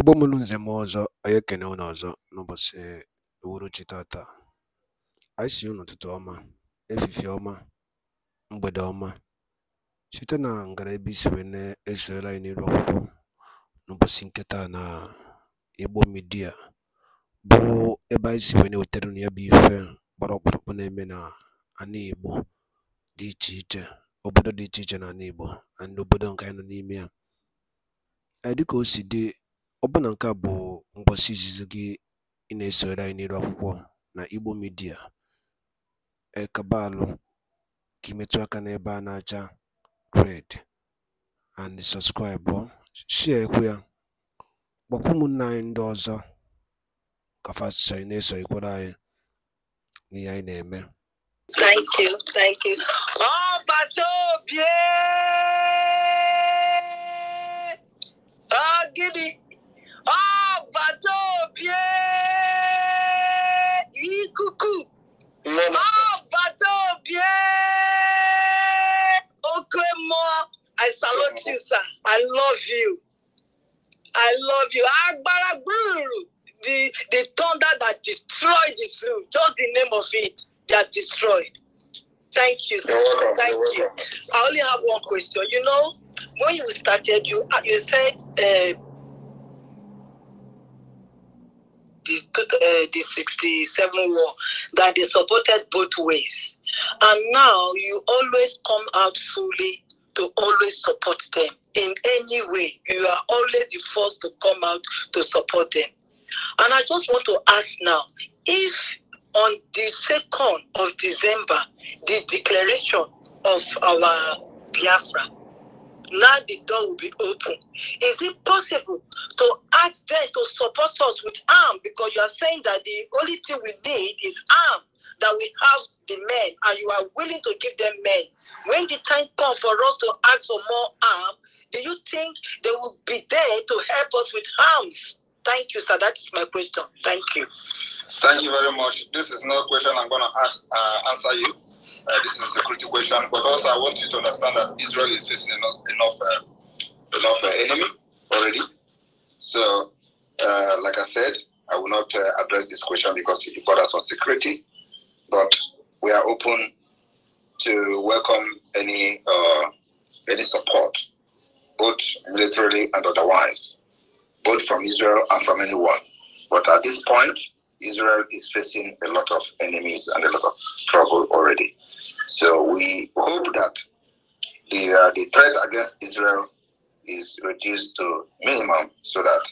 Igbo mụrụ nze m ọzọ, anyị ekene unu ọzọ n'ụbọchị uhuruchi tata. Anyị sị unu ụtụtụ ọma, efifie ọma, mgbede ọma, site na ngara ebe isi wee na anyị n'iru akwụkwọ n'ụbọchị nketa na Igbo midia bụ ebe anyị si wee na-ewetara unu ya bụ ife gbara ọkpụrụkpụ na-eme na ana Igbo dị iche iche, obodo dị iche iche na ana Igbo na obodo nke anyị nọ n'ime ya. Dịka o si dị Ọbụna nke a bụ ngwụsị izizi gị ị na esoro anyị n'iru akwụkwọ na Igbo midia Ekabaalụ ka ị metụ aka n'ebe a na-acha red and share shịakwa ya, gbakwa ụmụnne anyị ndị ọzọ ka fa ị na na-esonyekwara anyị n'ihe anyị na-eme. I love you. I love you. Agbára gbúrú the the thunder that destroyed the zoo. Just the name of it that destroyed. Thank you. Sir. welcome. Thank you. I only have one question. You know, when you started, you uh, you said uh, the uh, the sixty seven war that they supported both ways, and now you always come out fully to always support them in any way. You are always the first to come out to support them. And I just want to ask now if on the 2nd of December, the declaration of our Biafra, now the door will be open. Is it possible to ask them to support us with arms? Because you are saying that the only thing we need is arms that we have the men and you are willing to give them men. When the time comes for us to ask for more arms, do you think they will be there to help us with arms? Thank you, sir. That is my question. Thank you. Thank you very much. This is not a question I'm going to ask, uh, answer you. Uh, this is a security question, but also I want you to understand that Israel is facing enough enough, uh, enough uh, enemy already. So, uh, like I said, I will not uh, address this question because it borders on security but we are open to welcome any uh, any support, both militarily and otherwise, both from Israel and from anyone. But at this point, Israel is facing a lot of enemies and a lot of trouble already. So we hope that the uh, the threat against Israel is reduced to minimum, so that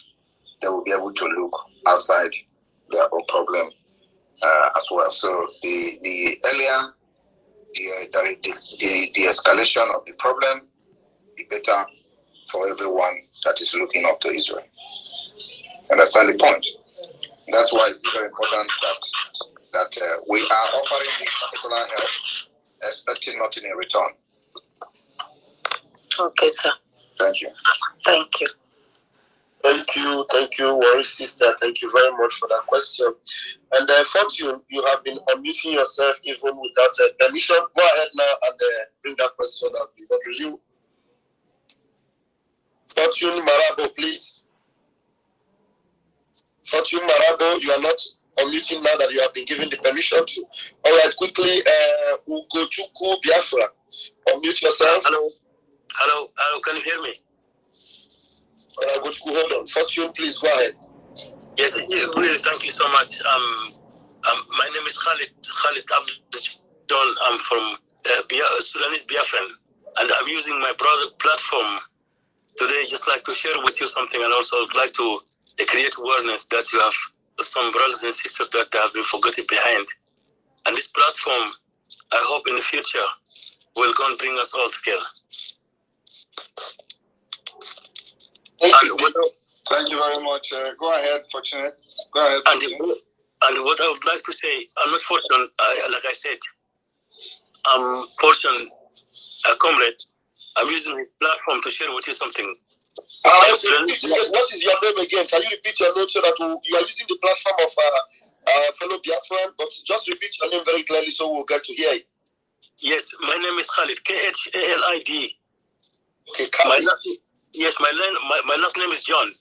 they will be able to look outside their own problem uh, as well. So the the earlier uh, the, the, the the escalation of the problem, the better for everyone that is looking up to Israel. Understand the point? That's why it's very important that that uh, we are offering this particular help, expecting nothing in return. Okay, sir. Thank you. Thank you. Thank you, thank you, Worry Sister. Thank you very much for that question. And I uh, Fortune, you have been unmuting yourself even without a uh, permission. Go ahead now and uh, bring that question up. Over will you. Fortune Marabo, please. Fortune Marabo, you are not unmuting now that you have been given the permission to. All right, quickly, uh, Ugochukwu Biafra, unmute yourself. Hello, hello, hello, can you hear me? Father hold on. Fortune, please go ahead. Yes, really, thank you so much. Um, um, my name is Khalid, Khalid Abdul I'm from uh, Bia- Sudanese Biafran, and I'm using my brother platform today just like to share with you something and also like to create awareness that you have some brothers and sisters that have been forgotten behind. And this platform, I hope in the future, will go and bring us all together. Thank and you. What, Thank you very much. Uh, go ahead, Fortunate. Go ahead. Fortunate. And, and what I would like to say, I'm not fortunate, like I said, I'm fortunate, a uh, comrade. I'm using this platform to share with you something. Uh, what is your name again? Can you repeat your name so that you are using the platform of uh, uh, fellow Biafran, but just repeat your name very clearly so we'll get to hear it. Yes, my name is Khalid, K H A L I D. Okay, Khalid. Yes, my, la- my, my last name is John.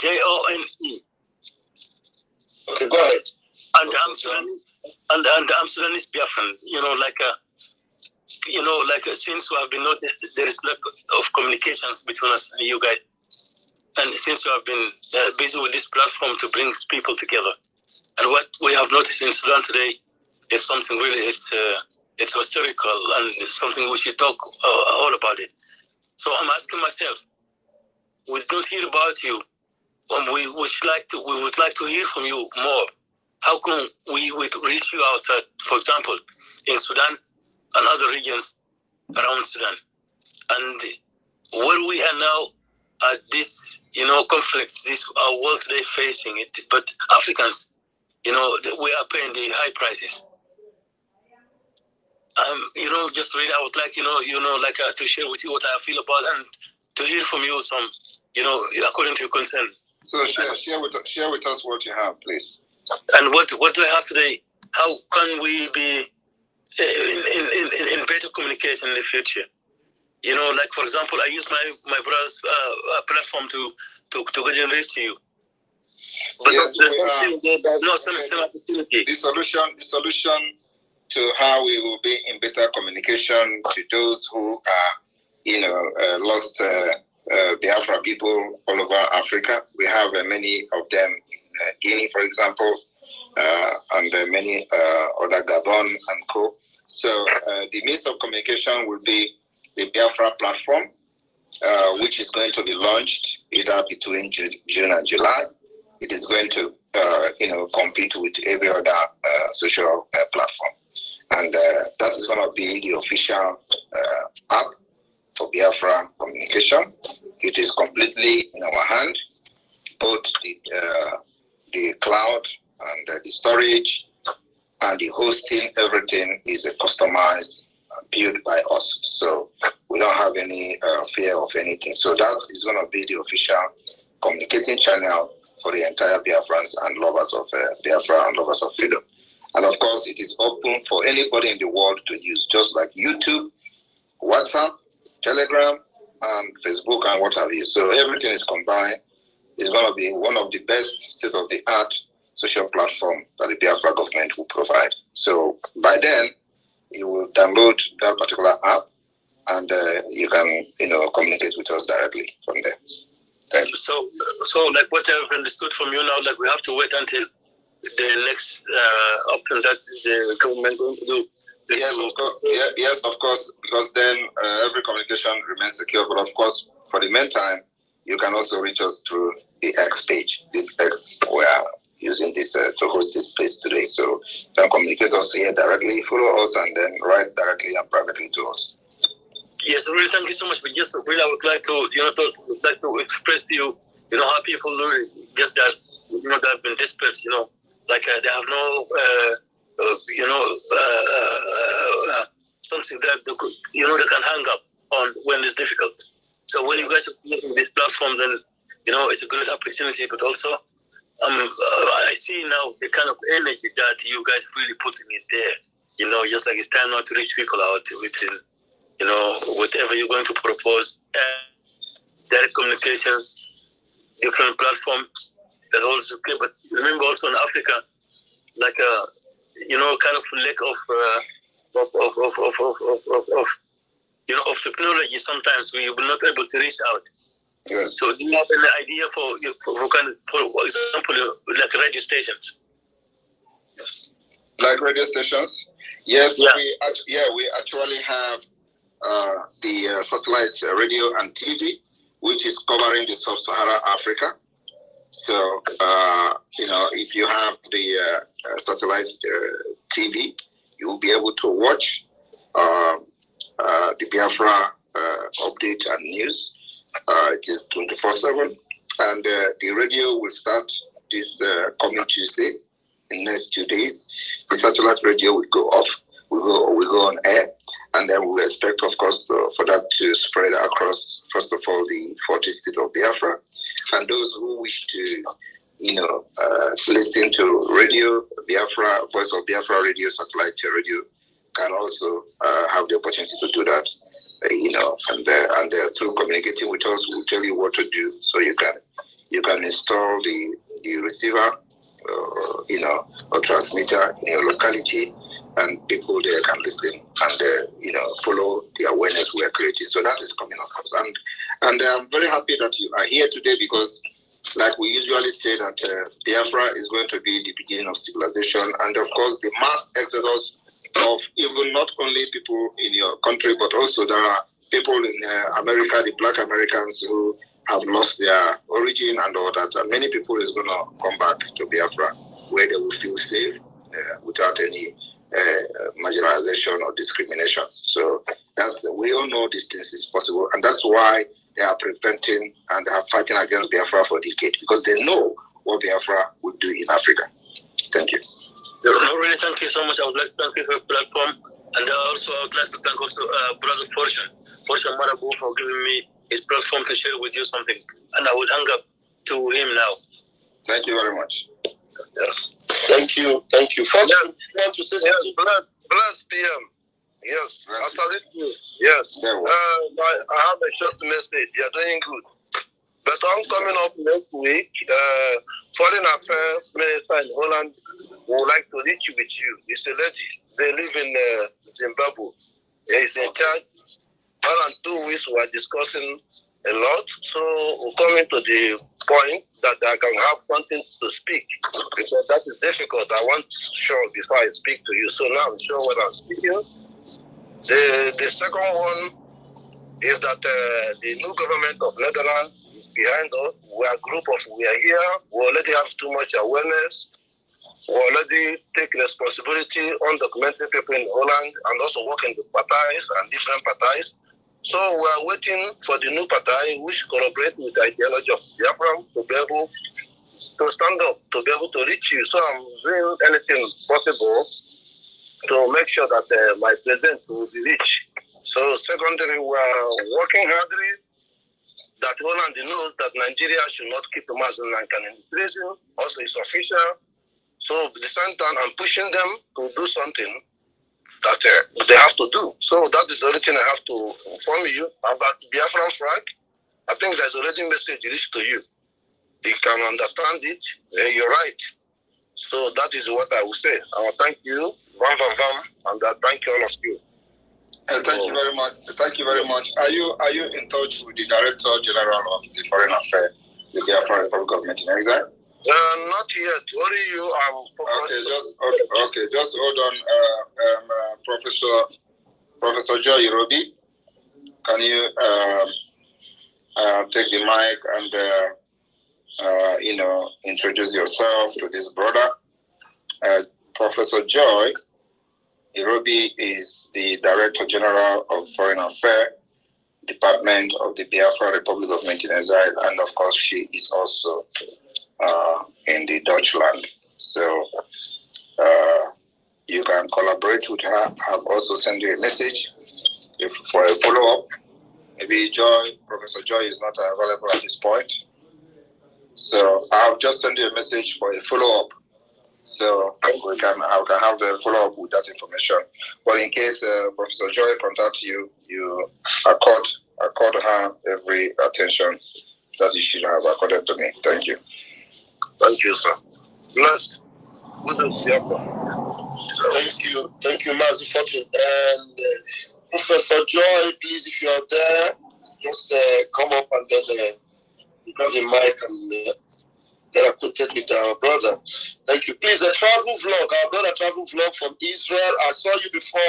J O N E. Okay, go ahead. And I'm and, and I'm Sudanese Biafran. You know, like a, uh, you know, like uh, since we have been noticed, there is lack of communications between us and you guys. And since we have been uh, busy with this platform to bring people together, and what we have noticed in Sudan today is something really it's uh, it's historical and something we should talk uh, all about it. So I'm asking myself, we do hear about you, and we would like to we would like to hear from you more. How can we would reach you outside, uh, for example, in Sudan and other regions around Sudan, and where we are now at this you know conflicts this our uh, world today facing it, but Africans, you know, we are paying the high prices. Um, you know, just really, I would like, you know, you know, like uh, to share with you what I feel about and to hear from you some you know, according to your concern. So share, share, with, share with us what you have, please. And what, what do I have today? How can we be eh, in, in, in, in better communication in the future? You know, like for example, I use my my brother's uh, uh platform to to to generate to you. But yes, there's uh, no some, some opportunity. The solution, the solution to how we will be in better communication to those who are, you know, uh, lost. Uh, the uh, Biafra people all over Africa. We have uh, many of them in uh, Guinea, for example, uh, and uh, many other Gabon and co. So the means of communication will be the Biafra platform, which is going to be launched either between June and July. It is going to, you know, compete with every other social platform, and that is going to be the official app for Biafra communication. It is completely in our hand, both the, uh, the cloud and uh, the storage and the hosting, everything is uh, customized, built by us. So we don't have any uh, fear of anything. So that is going to be the official communicating channel for the entire Biafrans and lovers of uh, Biafra and lovers of freedom. And of course, it is open for anybody in the world to use, just like YouTube, WhatsApp, Telegram and Facebook and what have you. So everything is combined. It's going to be one of the best state of the art social platform that the Biafra government will provide. So by then, you will download that particular app and uh, you can you know communicate with us directly from there. Thank you. So, so like what I've understood from you now, like we have to wait until the next uh, option that the government going to do Yes, of course. yes, of course. Because then uh, every communication remains secure. But of course, for the meantime, you can also reach us through the X page. This X, we are using this uh, to host this place today. So you can communicate us here directly, follow us, and then write directly and privately to us. Yes, really, thank you so much. But yes, really, I would like to, you know, to, like to express to you, you know, how people just that, you know, that have been dispersed, you know, like uh, they have no. Uh, uh, you know, uh, uh, uh, something that they could, you know they can hang up on when it's difficult. So when you guys are creating this platform, then you know it's a great opportunity, but also. Um, uh, I see now the kind of energy that you guys really putting in there. You know, just like it's time not to reach people out within, you know, whatever you're going to propose, direct communications, different platforms. That also, okay, but remember also in Africa, like you know, kind of lack of, uh, of, of, of, of, of, of, of, you know, of technology. Sometimes we were not able to reach out. Yes. So do you have an idea for, for, for, kind of, for example, uh, like radio stations? Yes. Like radio stations? Yes, yeah. we, yeah, we actually have uh, the uh, satellite uh, radio and TV, which is covering the sub-Saharan Africa. So uh, know, if you have the uh, uh satellite uh, TV, you will be able to watch um, uh, the Biafra uh, update and news. it is 24 7. And the radio will start this coming Tuesday in the next two days. The satellite radio will go off we go we go on air, and then we expect, of course, to, for that to spread across. First of all, the 40 states of Biafra, and those who wish to you know, uh, listening to radio, Biafra, Voice of Biafra radio, satellite radio, can also uh, have the opportunity to do that, uh, you know, and and through communicating with us, we'll tell you what to do, so you can you can install the the receiver, uh, you know, or transmitter in your locality, and people there can listen and uh, you know follow the awareness we are creating. So that is coming, of course, and and I'm very happy that you are here today because like we usually say that uh, Biafra is going to be the beginning of civilization, and of course the mass exodus of even not only people in your country, but also there are people in uh, America, the Black Americans who have lost their origin and all that. And many people is going to come back to Biafra where they will feel safe uh, without any uh, marginalization or discrimination. So that's we all know these things is possible, and that's why they are preventing and they are fighting against Biafra for decades because they know what Biafra would do in Africa. Thank you. No, really, thank you so much. I would like to thank you for the platform. And I also, I would like to thank also uh, Brother Fortune, Fortune Marabu, for giving me his platform to share with you something. And I would hang up to him now. Thank you very much. Yes. Thank you. Thank you. Fortune, yeah. you want to say something? PM. Yes, absolutely. Yes. Uh, I, I have a short message. You're doing good. But I'm coming up next week. Uh, Foreign Affairs Minister in Holland would like to reach with you. It's a lady. They live in uh, Zimbabwe. He's in charge. One and two weeks we are discussing a lot. So we're coming to the point that I can have something to speak because that is difficult. I want to show before I speak to you. So now I'm sure what I'm speaking. The, the second one is that uh, the new government of Netherlands is behind us. We are a group of, we are here. We already have too much awareness. We already take responsibility on documenting people in Holland and also working with parties and different parties. So we are waiting for the new party which collaborate with the ideology of Biafra to be able to stand up, to be able to reach you. So I'm doing anything possible to make sure that uh, my presence will be rich. So secondly, we are working hardly that Holland knows that Nigeria should not keep Muslim man in prison. Also, it's official. So at the same time, I'm pushing them to do something that uh, they have to do. So that is the only thing I have to inform you about Biafran Frank. I think there's already message reached to you. You can understand it. Uh, you're right. So that is what I will say. I will thank you, Van Van Van, and I thank all of you. And thank you very much. Thank you very much. Are you are you in touch with the Director General of the Foreign Affairs, the Biafran Republic Government in Exile? Uh, not yet. Worry you. i focused. Okay, just okay. okay. Just hold on, uh, um, uh, Professor Professor Joy Roby. Can you um, uh, take the mic and? Uh, uh, you know, introduce yourself to this brother. Uh, Professor Joy Irobi is the Director General of Foreign Affairs Department of the Biafra Republic of Nigeria, and of course, she is also uh, in the Dutchland. So uh, you can collaborate with her. I've also sent you a message if, for a follow up. Maybe Joy, Professor Joy, is not available at this point. So i have just sent you a message for a follow up. So we can I can have a follow up with that information. But in case uh, Professor Joy contacts you, you accord accord her every attention that you should have accorded to me. Thank you. Thank you, sir. Blessed. Good to see you. Thank you. Thank you, Master Fortune. And uh, Professor Joy, please, if you are there, just uh, come up and then uh, Brother Michael, uh, that I connected with our brother. Thank you. Please, the travel vlog, I got a travel vlog from Israel. I saw you before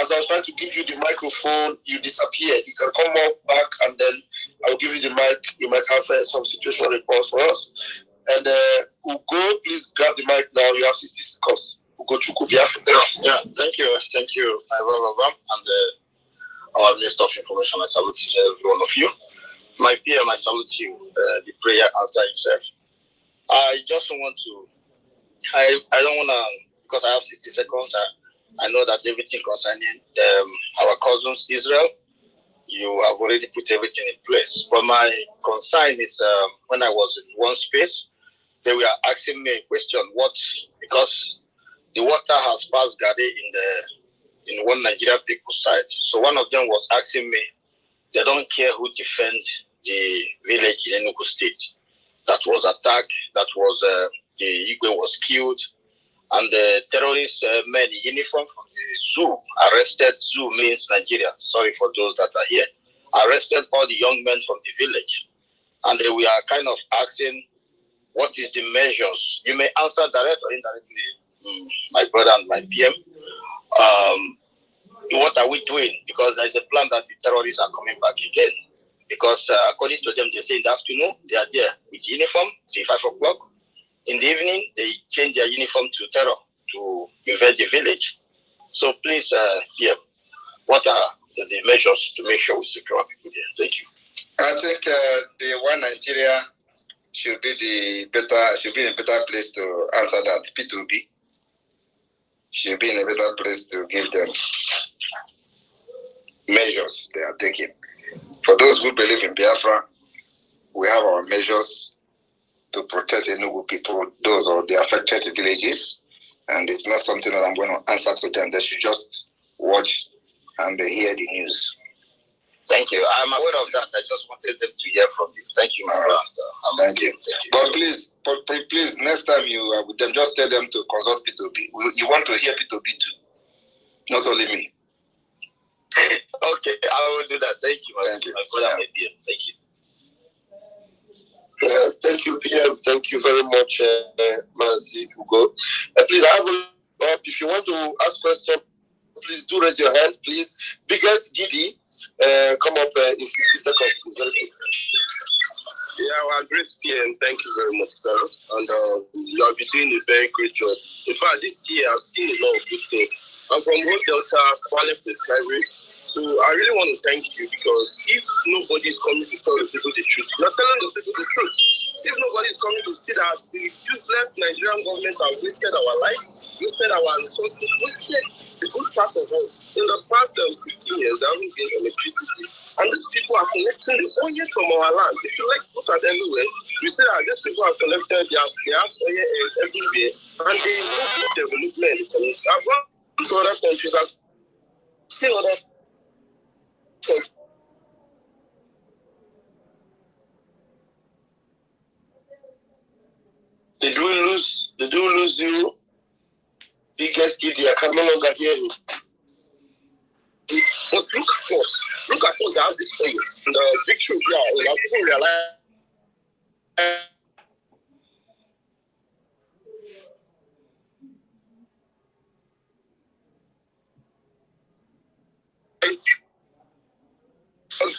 as I was trying to give you the microphone, you disappeared. You can come up back and then I'll give you the mic. You might have uh, some situational reports for us. And uh, Ugo, please grab the mic now. You have 60 seconds. Ugo Chukubia. Yeah, thank you. Thank you, Ivan Babam, and uh, our list of Information. I salute each every one of you. My fear, my salute you, uh, the prayer answer itself. I just want to, I, I don't want to, because I have 60 seconds, I, I know that everything concerning um, our cousins, Israel, you have already put everything in place. But my concern is um, when I was in one space, they were asking me a question, what, because the water has passed Gade in the in one Nigerian people's side. So one of them was asking me, they don't care who defends the village in Enugu State that was attacked, that was uh, the Igwe was killed, and the terrorists uh, uniform from the zoo arrested. Zoo means Nigeria. Sorry for those that are here. Arrested all the young men from the village, and we are kind of asking, what is the measures? You may answer directly or indirectly, mm, my brother and my PM. Um, what are we doing? Because there's a plan that the terrorists are coming back again. Because uh, according to them, they say in the afternoon they are there with uniform till five o'clock. In the evening, they change their uniform to terror to invade the village. So please, uh, yeah, what are the measures to make sure we secure people there? Thank you. I think uh, the one Nigeria should be the better should be a better place to answer that. P2B should be in a better place to give them measures they are taking. For those who believe in Biafra, we have our measures to protect Enugu people, those or the affected villages. And it's not something that I'm going to answer to them. They should just watch and hear the news. Thank you. I'm aware of that. I just wanted them to hear from you. Thank you, my brother. Thank, you. Thank you. But please, but please, next time you are uh, with them, just tell them to consult p 2 You want to hear p 2 too, not only me okay, I will do that. Thank you, thank you. for Thank you. thank you, PM. Thank you very much, uh, uh Manzi Hugo. Uh, please, I will If you want to ask question, please do raise your hand, please. Biggest Giddy, uh, come up uh, in 60 seconds, please. Yeah, well, great PM. Thank you very much, sir. And uh, you have been doing a very great job. In fact, this year I've seen a lot of good things I'm from Old Delta, Kwale Presbytery. So I really want to thank you because if nobody is coming to tell the people the truth, you're telling the people the truth. If nobody is coming to see that the useless Nigerian government has wasted our life, wasted our resources, wasted the good part of us. In the past um, 16 years, there haven't been electricity. And these people are collecting the oil from our land. If you like look at everywhere, eh? you see that these people have collected their, their oil eh, everywhere, and they move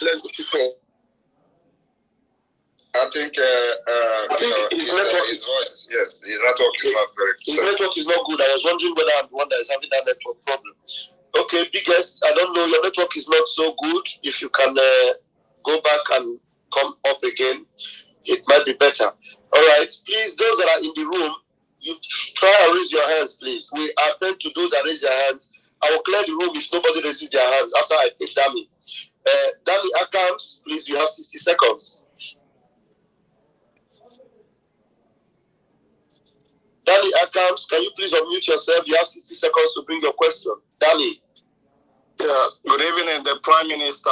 blessed with people. I think, uh, uh, I think know, his, his, uh, network, his voice, yes, his network is not very His network is not good. I was wondering whether I'm the one that is having that network problem. Okay, biggest, I don't know, your network is not so good. If you can uh, go back and come up again, it might be better. All right, please, those that are in the room, you try and raise your hands, please. We attend to those that raise their hands. I will clear the room if nobody raises their hands after I examine. Eh, Danny Accounts, please, you have 60 seconds. Danny accounts, can you please unmute yourself? You have 60 seconds to bring your question. Danny. Yeah, good evening, the Prime Minister.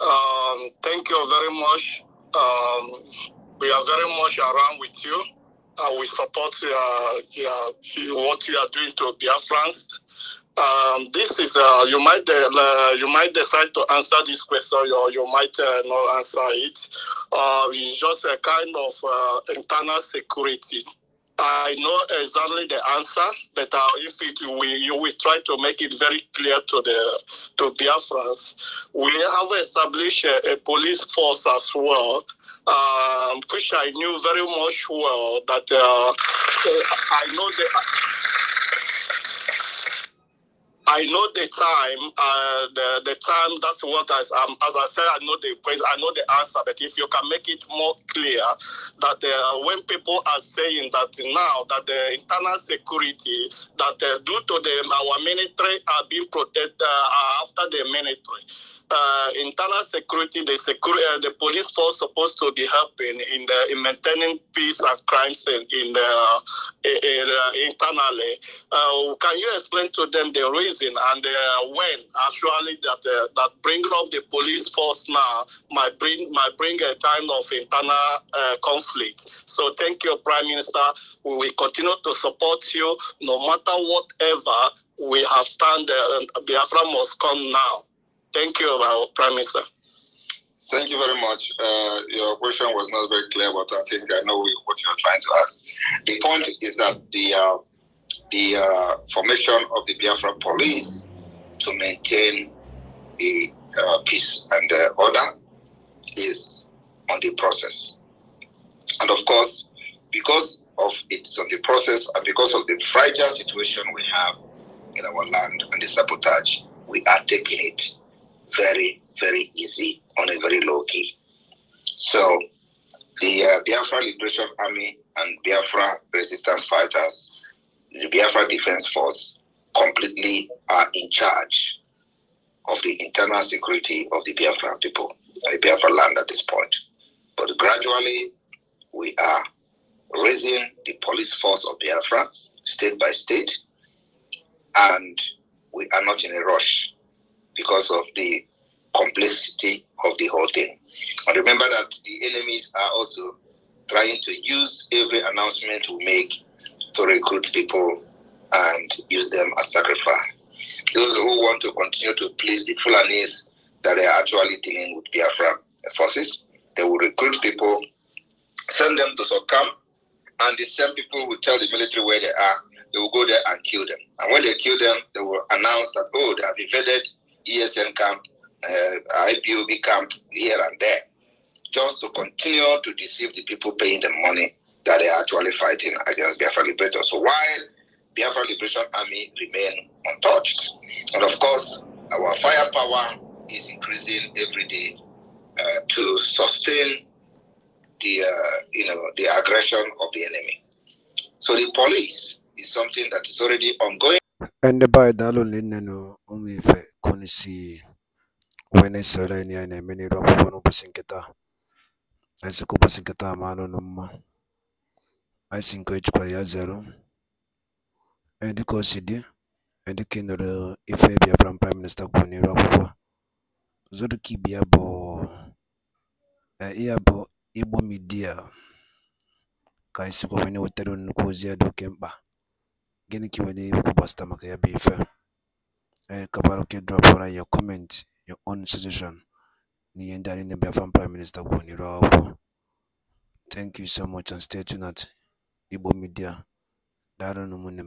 Um, thank you very much. Um, we are very much around with you. Uh, we support uh, yeah, what you are doing to Biafrans. Um, this is uh, you might uh, you might decide to answer this question or you might uh, not answer it. Uh, it's just a kind of uh, internal security. I know exactly the answer, but uh, if it, we you will try to make it very clear to the to Biafrans, we have established a, a police force as well um, which I knew very much well that uh, I know the I know the time, uh, the the time. That's what I, um, as I said, I know the question, I know the answer. But if you can make it more clear that uh, when people are saying that now that the internal security that uh, due to them our military are being protected uh, after the military, uh, internal security, the security, uh, the police force supposed to be helping in the in maintaining peace and crimes in, in the in, internally. can you explain to them the reason? And uh, when actually that uh, that bring up the police force now might bring might bring a kind of internal uh, conflict. So thank you, Prime Minister. We will continue to support you no matter whatever we have stand. Uh, um, Biafra must come now. Thank you, uh, Prime Minister. Thank you very much. Uh, your question was not very clear, but I think I know what you're trying to ask. The point is that the uh, the uh, formation of the Biafra police to maintain the uh, peace and uh, order is on the process. And of course, because of it's on the process and because of the fragile situation we have in our land and the sabotage, we are taking it very, very easy on a very low key. So the uh, Biafra Liberation Army and Biafra resistance fighters the Biafra Defense Force completely are in charge of the internal security of the Biafra people, the Biafra land at this point. But gradually, we are raising the police force of Biafra state by state, and we are not in a rush because of the complexity of the whole thing. And remember that the enemies are also trying to use every announcement we make to recruit people and use them as sacrifice. Those who want to continue to please the Fulanis that they are actually dealing with Biafra forces, they will recruit people, send them to succumb, and the same people will tell the military where they are. They will go there and kill them. And when they kill them, they will announce that, oh, they have invaded ESN camp, uh, IPOB camp here and there, just to continue to deceive the people paying them money that they are actually fighting against Biafra Liberation. So while Biafra Liberation Army remain untouched, and of course, our firepower is increasing every day uh, to sustain the uh, you know the aggression of the enemy. So the police is something that is already ongoing. And by dalolin neno umife kunisi wene sere ni ene meni rokubo nubusinketa. Ese kubasinketa mano numma asinga ecupa lya zero and cosid and kindle ife bịa from prime minister kwuru n'iru akwụkwọ zurukib ya bụ eh, ya bụ igbo midia ka anyị sikwa wee na-ewetara nnukwu ozi ya dị oke mkpa gịnị ka iwere ikwu gbasịta maka ya bụ ife eh, kabara oke dropụra your comment your own suggestion na ihe ndị anyị na-ebịa from prime minister kwuru n'iru akwụkwọ thank you so much and stay tuned Igbo Media. Daalụnụ ụmụnne m.